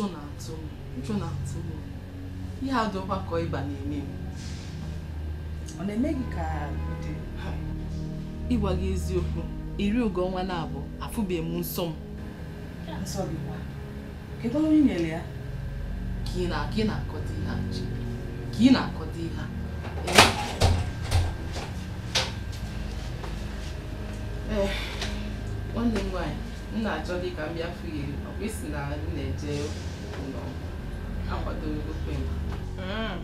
ụjọ na-atụ m ụjọ na ihe ọgbakọ ịba na-eme m ọ na-eme gị ka ịgwa gị eziokwu iri ugo ọnwa na-abụ afụbeghị m nsọ m kedu ọrụ ị nyere ya ka ị na-akọta ihe nwanne m nwaanyị m na-achọ gị ka m bịa fụ eje Mm.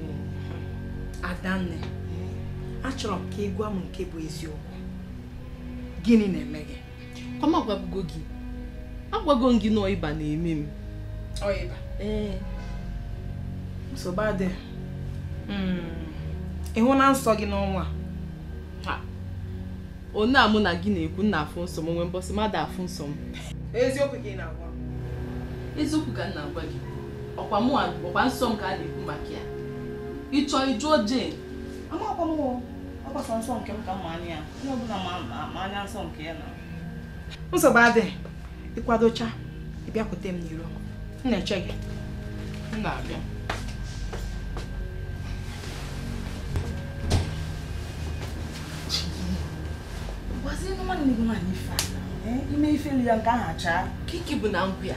Eh, adanne mm. achọrọ m ka ị gwa m nke bụ eziokwu gịnị na-eme gị kọma gwagbugo gị agwago m gị na na-eme m ọịba ee eh. nsogbu adị mm. ịhụ na nsọ gị n'ọnwa a a mụ na gị na-ekwu nna afụ nsọ m nwee mbọsị mmadụ afụ nsọ m eziokwu gị na-agwa eziokwu ka m na-agwa gị ọkwa mụ ọkwa nsọ m ka a na-ekwu maka ya ịchọ ịjụọ Jane amakwa nke ọbụla ma anya nsọ nke ya na nsogbu adịghị ịkwadocha ịbịakwute m n'iro m na-eche gị m na-abịa gị nwaanyị ife ime ife ya nke ka ike bụ na nkwụ ya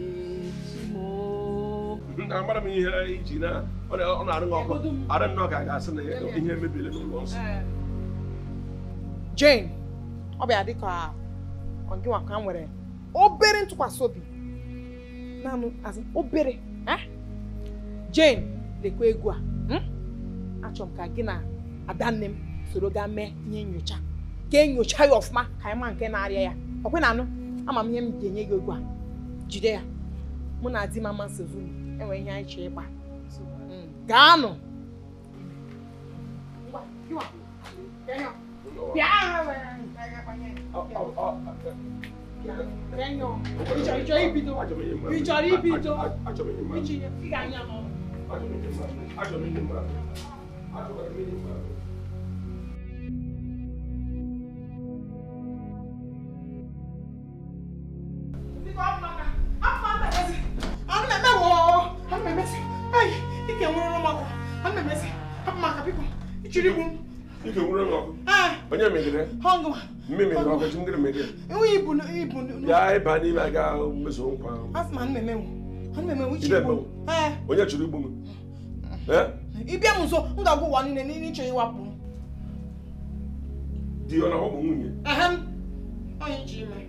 amara m ihe iji na ọ na-arụ ọkụ ara nnọọ ka a ga-asị na ihe mebiri n'ụlọ nsọ Jane ọ bịa dị ka ọgịnwa ka nwere obere ntụkwasị obi naanị azụ obere eh? Jane lekwa egwu a hm? achọrọ m ka gị na adanne m soro gaa mee ihe nyocha ka enyocha ya ọfụma ka anyị ma nke na-arịa ya ọkwe na anụ ama m ihe m ga-enye gị egwu a jide ya mụ na di m amasị zuru enwe ihe anyị chọọ ịgba gaanụ bịa ịchọrọ ibido ị ga-anya n'ọrụ Hongo. Mimi ngo ko chimgire mede. Iwi ibunu ibunu. Ya iba ni ba ga meso nkwa. Asma nmeme wo. Nmeme wo chibu. Eh. Onye churu igbu mu. Eh? Ibia mu so nga go wani ne ni chiri wapu. Di ona wo munye. Ahem. Onye chime.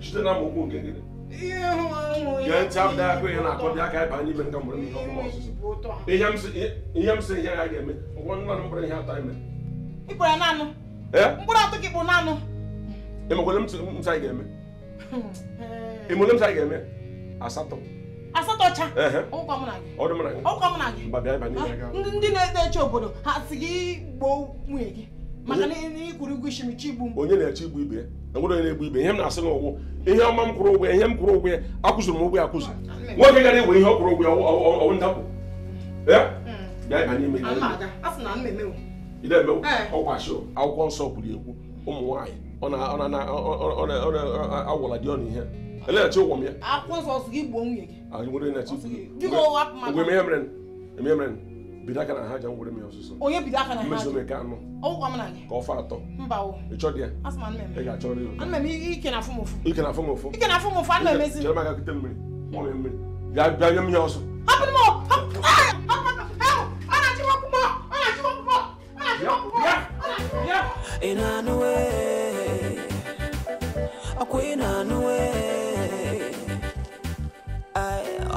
Chite na mo ko ngegede. Yɛ ntam da ko yɛ na akɔ bi aka ɛba ni bɛn ka mɔrɔ mi ka kuma ɔsoso. Iyam se iyam se yɛ ayɛ mi. Wɔn nana mɔrɔ yɛ ata mi. Ibura nanu. mkpụrụ atọ gị bụ naanụ ịmakwele ntụ anyị ga-eme ịmụle ntụ anyị ga-eme asatọ asatọ cha ndị na-eto obodo ha si gị gboo nwunye gị maka na ịkwụrụ ụgwọ ishimichi igbu onye na-eche igbu ibe onye na-egbu ibe ihe m na-asị n'ụgwụ ihe ọma m kwụrụ ụgwọ ihe m kwụrụ ụgwọ ya akwụziri m ụgwọ ya akwụzi nwoke gara egwe ihe ọ kwụrụ ụgwọ ya ọwụ ndapụ bịa n'ime ị na-eme eh. ọkwa ashọ akwụkwọ nsọ kwuru ekwu ụmụ nwaanyị agwara dị ọnụ ihe elechi ụgwọ m ya ngwere ah, ihe mere eme mere bido aka na ha ja ngwere m ya ọsụsọ mmezume ka anụ ka ọfa atọ ịchọ dị ya ị ga-achọ ike na afọ m ụfụ chere m aka kute mmiri mmiri ga-abịa nye m ya ọsọ ina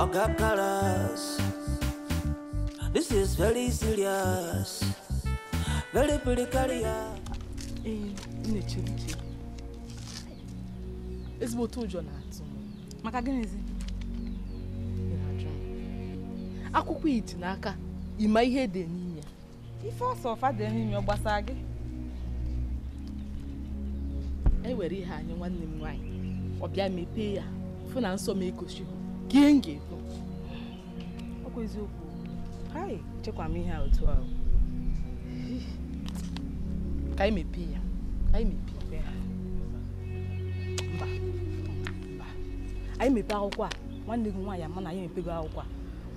ọga karas this is very serious very eh, ezigbo otu ụjọ na-atụ maka gịnịzi akwụkwọ iti n'aka ịma ihe dị n'ime ife ọsọ ọfa dị n'ime gbasara gị ewere ihe anyị nwanne m nwaanyị ọ bịa mepee ya fụ na nsọ m ekochi gee m ga-ekwu ọkwa eziokwu haị chekwa m ihe otu ahụ ka anyị mepee ya ka anyị mepee ya mba mba anyị mepee akwụkwọ a nwanne gị nwaanyị ama na anyị mepego akwụkwọ a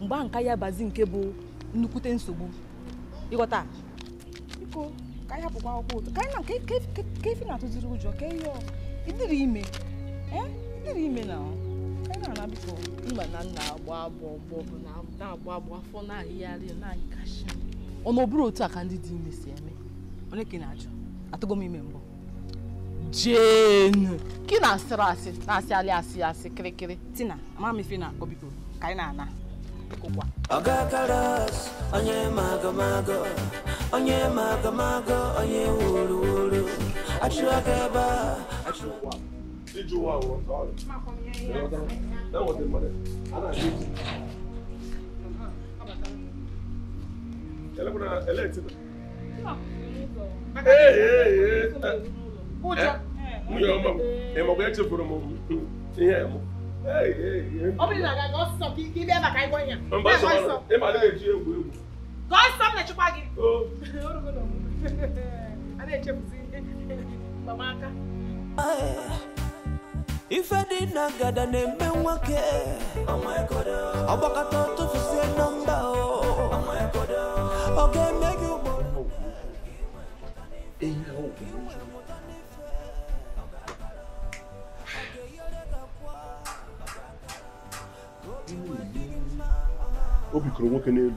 mgbe ahụ nka ya bazi nke bụ nnukwute nsogbu ịghọta iko. ka anyị hapụkwa akwụkwọ ụtọ ka anyị na ka efi na-atụziri ụjọ ka ihe ịdịrị ime ịdịrị ime na anyị na-ana biko mba na nna agba agbọ ọgbọ bụ na-agba agbọ afọ na-ahịgharị na-anyị kashi ọ na ọbụrụ otu a ka ndị dị ime si eme onye ka ị na-ajụ atụgo m ime mbụ jenu ka ị na-asịrị asị na-asịalị asị asị asị kịrịkịrị tina ama m ife na-akọ biko ka anyị na-ana bikokwa ọgakara onye magomago onye magamago onye wuru wuru achụaka echefuru m ihe m ọ bụrụ na ọ sọ ka ibe ebe ka ịgwọ ya ịma na-eji egwu egwu gọọ nsọ m na-echekwa gị eh, ife dị na ngada na-eme nwoke ọgbakọta tụfusie nọmba ọ ga-eme gị ugboro o nwoke n'elu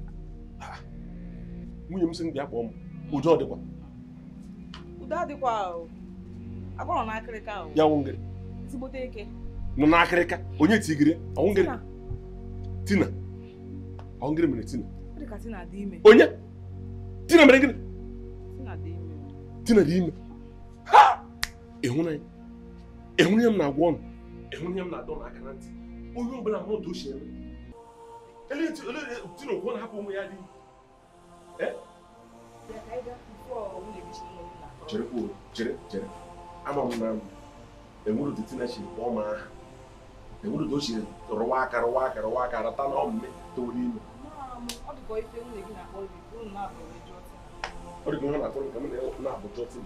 nwunye m sị m bịa kpọọ m udo ọ dịkwa udo adịkwa agba nọ n'akịrịka ya nwụ ngịrị ezigbote eke nọ n'akịrịka onye tigiri ọnwụ ngịrị tina ọnwụ ngịrị mere tina onye tina mere gịnị tina dị ime ịhụnanya ịhụnanya m na-agwa ọnụ ịhụnanya m na-adọ n'aka na ntị onye ọbụla hụrụ otu o si eme ele tina okwu na-hapụ ụmụ ya dị chere kwuo chere chere ama m na enwere ụdị tina chiri kpọọ m aha enwere ụdị o chiri rụwa aka rụwa aka rụwa aka arata na ọmụme toro ime ọ dịka ihe na-atụrụ nke m na-abụ jọtin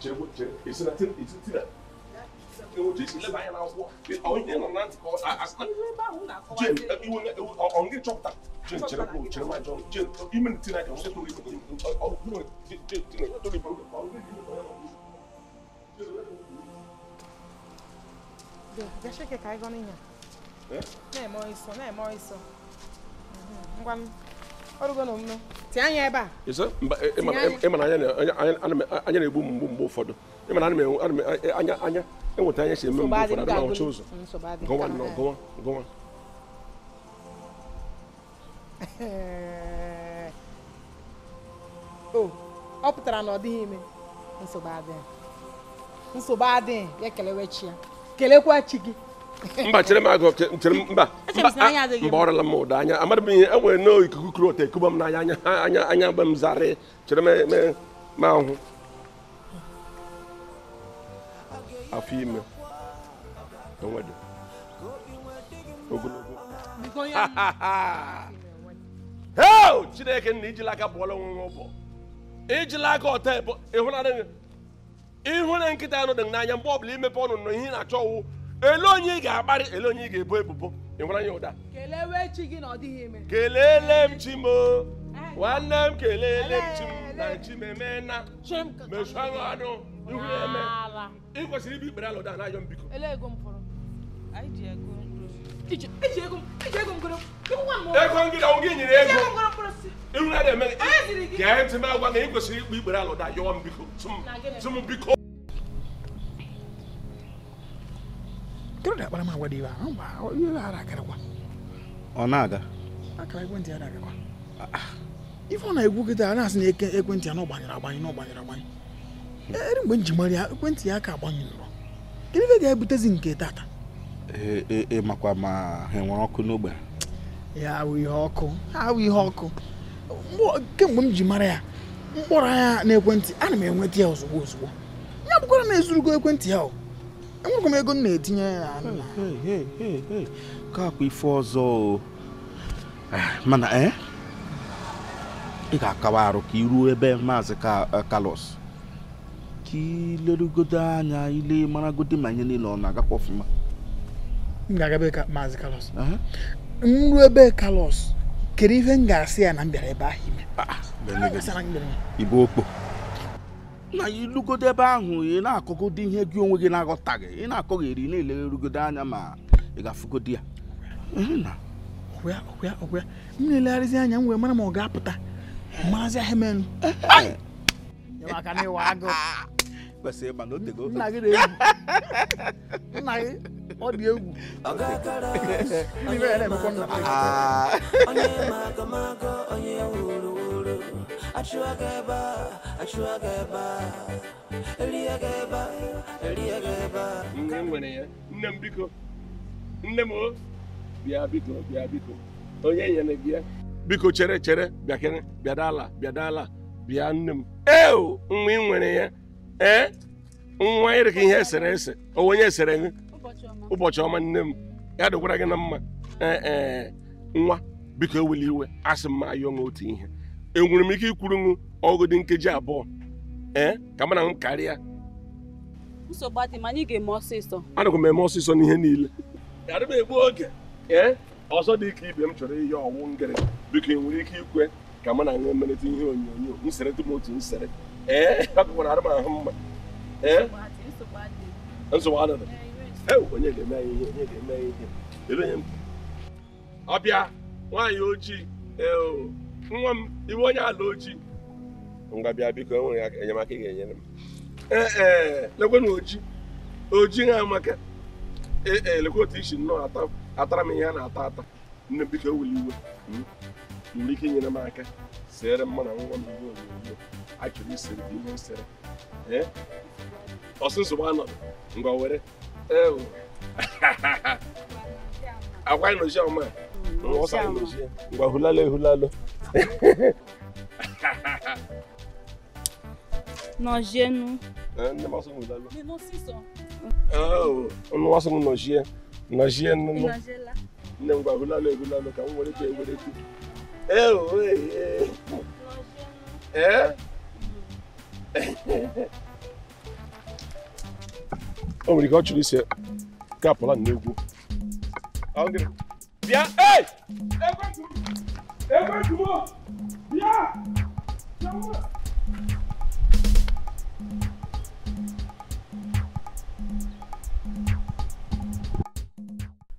chere kwuo chere esi na tina ọ nga ịchọpụta jen chere m chere m ajọ jen ime ntị na ọsọ toro ibe ọgụgụ toro ibe Deixa que caiga a minha. É? Não é mó isso, não é mó isso. Ngwa ọrụgo na omume tinye anya ebe a ịma na anya na-egbu m mgbe ụfọdụ ịma na anya enweta ihe si eme mgbe ụfọdụ adịla ọcha ụzọ gọwa nọ gọwa gọwa o ọ pụtara na ọ dịghị ime nsogbu adịghị nsogbu adịghị ya kelewe chi ya kelekwa chi gị mba chere m agụ chere m mba mba ọrịla m ụda anya amadị m ihe enwere n'ikuku kuru ote ekuba m n'anya anya anya anya mgbe m zarị chere m ahụ afọ ime enwede ogologo heo chineke na ijila aka bụọla onwe ụbọ ijila aka ọta ịhụre nkịta anụ dị n'anya mgbe ọbụla imepe ọnụ nọ, ihe ị na-achọ ọwụ ele onye ị ga-akparị ele onye ị ga-ebo ebubo ịhụra ya ụda kelele m chi m nwanne m kelele m chi m na chi m emena mechụ aṅụ anụ ihu ya ego ego ikpere alụ daa n'ajọ mbiko ego ngị na ego ihu na na-eme gee ntị m agwa na ị ikpe ikpere m ọ na-aga akara ekwentị ya ife na a na-asị na ekwentị ya na gbanyere agbanye gbanyere ere eh, mgbe m mara ya ekwentị ya aka agbanyụrụ gịnị ife ga-ebutezi nke tata ee eh, eh, makwa ma ha nwere ọkụ n'ogbe ya awụ ihe ọkụ awụ ihe ọkụ kemgbe m ji mara ya mkpọrọ anya n'ekwentị ana m enweta ya ozugbo ozugbo ya bụkwara na ezurugo ekwentị ya o enwekwa m ego m na-etinye ya ka akwa ife ọzọ mana ị ga-akawa arụ ka iruo ebe maazị kalos ka ilerugodo anya ile maragodo ma ihe niile ọ na-agakwa ọfụma m ga-agabe ka maazị kalos nru ebe kalos kedu ihe m ga-asị ya na m bịara ebe ahụ ime ah, ah, okpo na ilugodo ebe ahụ ị na-akọgodo ihe gị onwe gị na-aghọtaghị ị na-akọgheri na-elerugodo anya ma ị ga-afụgodo ya ọgwụ ya m na-elegharịzi anya m wee mara ma ọ ga-apụta eh. maazị ahịa eh. maka kwesịrị ịgba n'otego nna gị na-egwu nna gị ọ dị egwu na nne m nwere ya nne m biko nne m bịa biko bịa biko onye nyere gị ya biko chere chere bịakere bịadala bịadala bịa nne m eo nwa ị nwere ya ee nwa ịrịka ihe esere ese onwe onye esere gị ụbọchị ọma nne m ya dịkwara gị na mma ee e, nwa biko eweli iwe asị mma ma ayọ otu ihe enwere m ike ikwuru ṅụ ọgụdị nkeji abụọ ee ka mana m karịa anakwa m eme ọsịsọ n'ihe niile gara m egbu oge ee ọzọ dị ike ibe m chọrọ ihe ọwụ ngịrị biko enwere ike ikwe ka mụ na aṅụ ihe onyonyo m sere tụm otu m sere ee eh? hapụkwara arụma mma ee eh? nsogbu eh, onye ga-eme anyị onye ga-eme anyị m ọbịa nwaanyị ojii nwa m iwe onye ala ojii Mgbabi biko e nwere enyemaka ị ga-enyere m ee ojii, oji oji ha amaka ee isi nnọọ atara m ihe a na-ata ata nne biko ewuli iwe hmm? nwere ike inyere m aka sere mma nwa m iwe achọrọ ise ihe isere ọsụsụgba anọdụ ngwa were eh, oh. akwa inochi ọma ọsa inochi ngwa hulalo ehulalo nọjienu ọnụ wasụ m nọjie nọjie nnụnụ nne m gwa hulalo ehulalo ka m were ka ewere ee o nwere ihe ọ chọrọ isi kapụla na egwu bịa ee ekwetuo bịa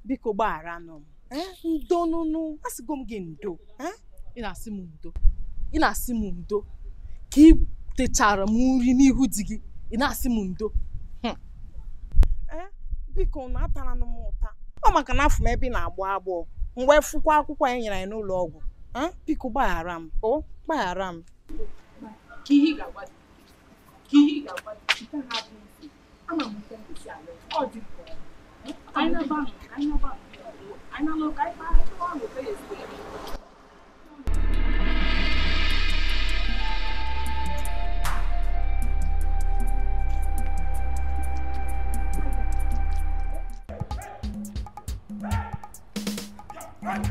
biko gbagharanụ m eh? ndo nụnụ asịgo m gị ndo eh? ị na-asị m ndo ị na-asị m ndo ka techara m nri n'ihu di gị ị na-asị m ndo eh, biko na atara m ụta ọ maka na afọ m ebe ị na-agbọ agbọọ mgbe fụkwa akwụkwọ anyị nyere anyị n'ụlọ ọgwụ eh, biko gbaghara m o oh, gbaghara m Aynen bak, aynen bak. Aynen Hej!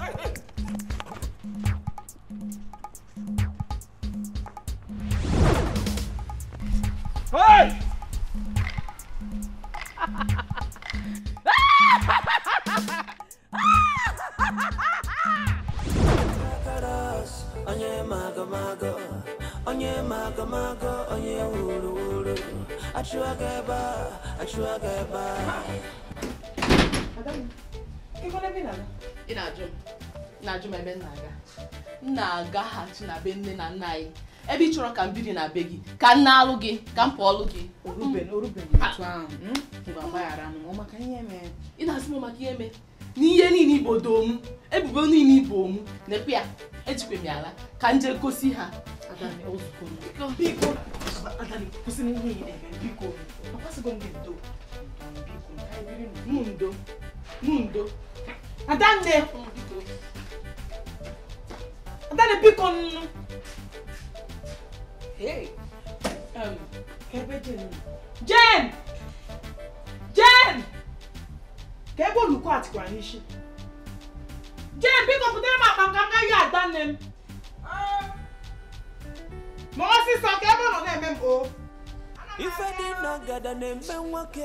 Onye mago mago, onye mago mago, onye wuru wuru, achụọ gị ebe a, achụọ gị ebe a. Adam, ị gwara ebe ị na-aga? ị na-ajụ m na-ajụ m ebe m na-aga m na-agaghachi na be nne na nna anyị ebe ị chọrọ ka m biri na be gị ka m na-alụ gị ka m pụọ ọlụ gị mm. mm. ị na-asị m maka ihe mee n'ihe niile igbo doo m ebubo niile ibo m na-ekwe ya ejikwe m ya ala ka m jee gosi ha mundo mundo Adanne. Adanne biko nnu. Hey. Um, kebe Jane. Jane! Jane! Kebe olùkọ́ àti kwa nishi. Jane biko kutere ma panganga ya Adanne. Um. Mo si so kebe no na mem o. Ife di na gada na mbe nwoke.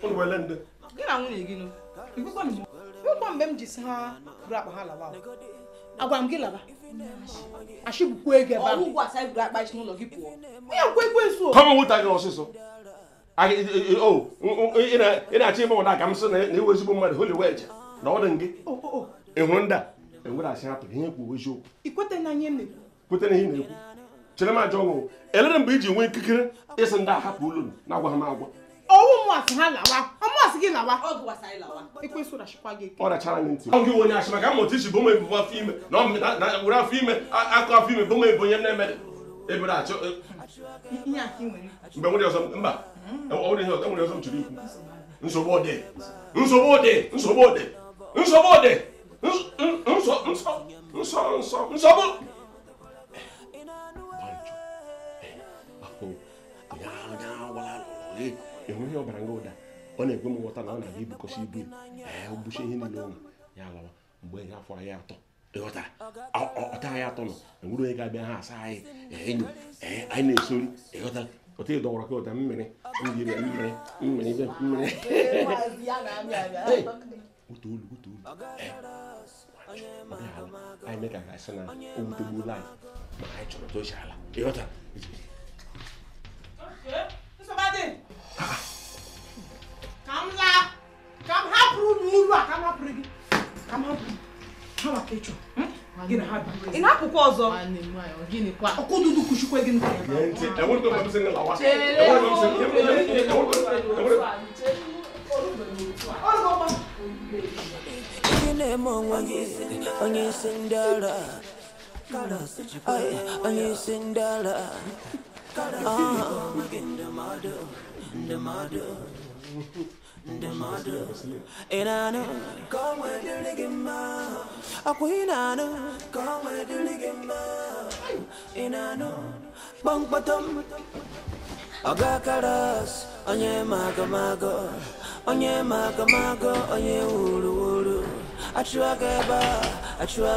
gị na nwunye gị nwekwa mgbe m ji si ha buru akpa ha lawa agwara m gị laba achịbụkwa ego ebe ahụ ụgwọ asa buru akpa n'ụlọ gị pụọ onye nkwe ekwensu kọmọ nwụta gị ọsịsọ ị na-achọ ịmụ ụda ka m sị na iwe ezigbo mmadụ holi weje na ọ dị gị ị hụrụ ndị a enwere asị hapụ ihe kwuo eziokwu ikwete na ihe na-ekwu chere m ajọ ọṅụ elere mgbe iji nwee ikikere ịsị ndị a hapụ ụlọ na agwa ha m agwa owu mu asi ha lawa ọmụ asi gị lawa ikwe so rashi kwa gị ike ọ rachara gị ntị ọgị wonye ashima ka m otu isi bụ ụmụ ebubo afọ ime na were afọ ime akụ afọ ime bụ ụmụ ebe onye na-emede ebere achọ mgbe nwere ọzọ mba enwere ọzọ m chụrụ ikwu nsogbu ode nsogbu ode nsogbu ode nsogbu ode nsọ nsọ nsọ nsọ nsogbu banjo afọ ya agwala lụrụ ịhụ ihe ọbara nga ụda ọ na-ekwe m nghọta na ọ na-aga ibukọsi ibu ee bucha ihe niile ụlọ ya lawa mgbe ya afọ anyị atọ ịghọtara ọta anyị atọ nọ enwere onye ga-abịa ha asa anyị enyo ee anyị na-esori ịghọta otu ị dọwara ka ụda mmiri mmiri mmiri mmiri ibe mmiri otu olu otu olu anyị mee ka ga-asị na o wutegbuola anyị ma anyị chọrọ tochi ala ịghọta buru a ka hapụrụ gị ka m hapụrụ ha ịchọ hmm? ị na-apụkwa ọzọ ọkụdudu kuchikwe gị gị onye isi ndị ndị mmadụ ị na-anụ ka ọnwa dịrị gị mma akwa ị na-anụ ka ọnwa dịrị gị mma ị na-anụ kpọmkpọtọm ọgakaras onye ma onye ma onye wuru wuru achụa gị ebe a achụa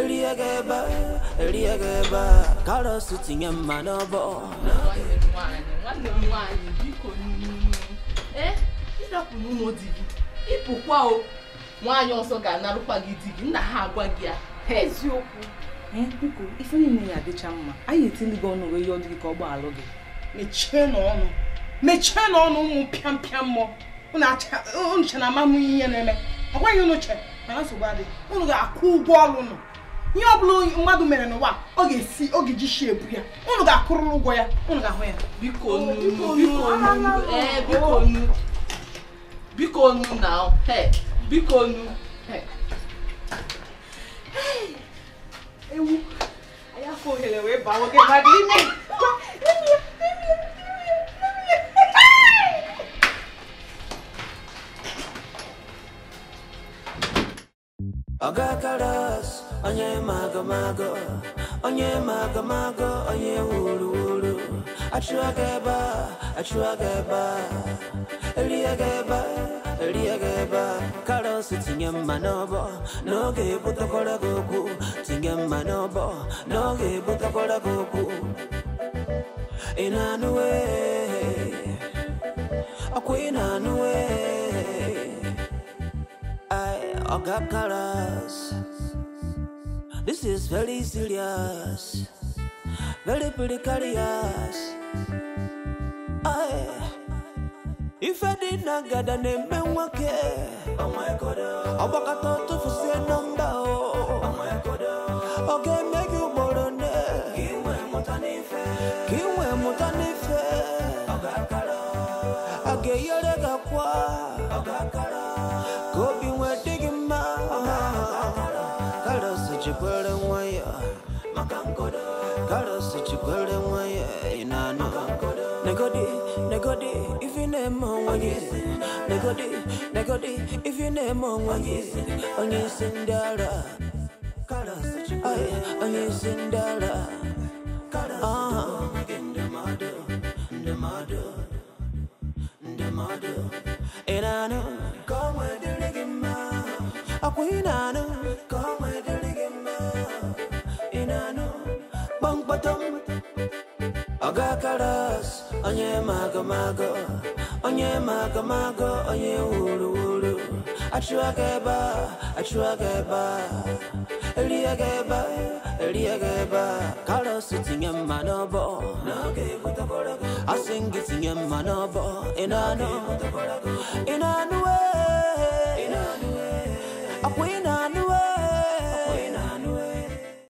erie gị ebe a erie gị ebe a tinye mma n'ọbọ nwanne Eh, ịrapụrụ ụmụ di gị ịpụkwa o nwaanyị ọzọ ga-anarụkwa gị di gị nna ha agwa gị ya eziokwu biko ife niile ya adịcha mma anyị etili gị ọnụ wee yọọ gị ka ọ gbaalụ gị mechie na mechie n'ọnụ ụmụ pịampịa mmụọ che na amamụ ihe na-eme ọ gwaghị ụnụ che mana nsogbu adịghị ụnụ ga-akwụ ụgwọ ọrụ nụ ihe blu bụla mmadụ mere no ọ ga-esi ọ ga-eji shi ebu ya unu ga-akụrụ ụgwọ ya unu ga-ahụ ya biko nu na biko nu ewu anyị afọ ohere wee eu nwoke que ime I got colors. onye mago onye magomago onye wuru wuru achụọ gị ebe a achụọ gị ebe a elie gị ebe a elie gị ebe a karos tinye mma n'ọbọ n'oge ebutekwara gị okwu tinye mma n'ọbọ n'oge ebutekwara gị okwu ị na-anụwe ị na-anụwe ọga karas this is very serious, very precarious. Aye. If I did not get a name, I would care? Oh my god, I'm a cat to for number. name on when you sing, Negodi, if you name on when you sing, when you sing Dara, when you sing Dara, ah, the mother, the mother, the mother, and I know, come with the ligama, a queen, I know, come with the ligama, and I know, Bunk Batum, Agakaras onye mago onye magomago onye wuru wuru achụwa gị ebe a achụwa gị ebe a erie gị ebe a erie gị ebe a karọs tinye mma n'ọbọ asị gị tinye mma n'ọbọ ị na-anụ ị na-anụ wee